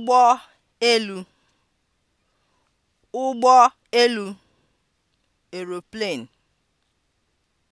ụgbọ elu (ụgbọ elu) aeroplane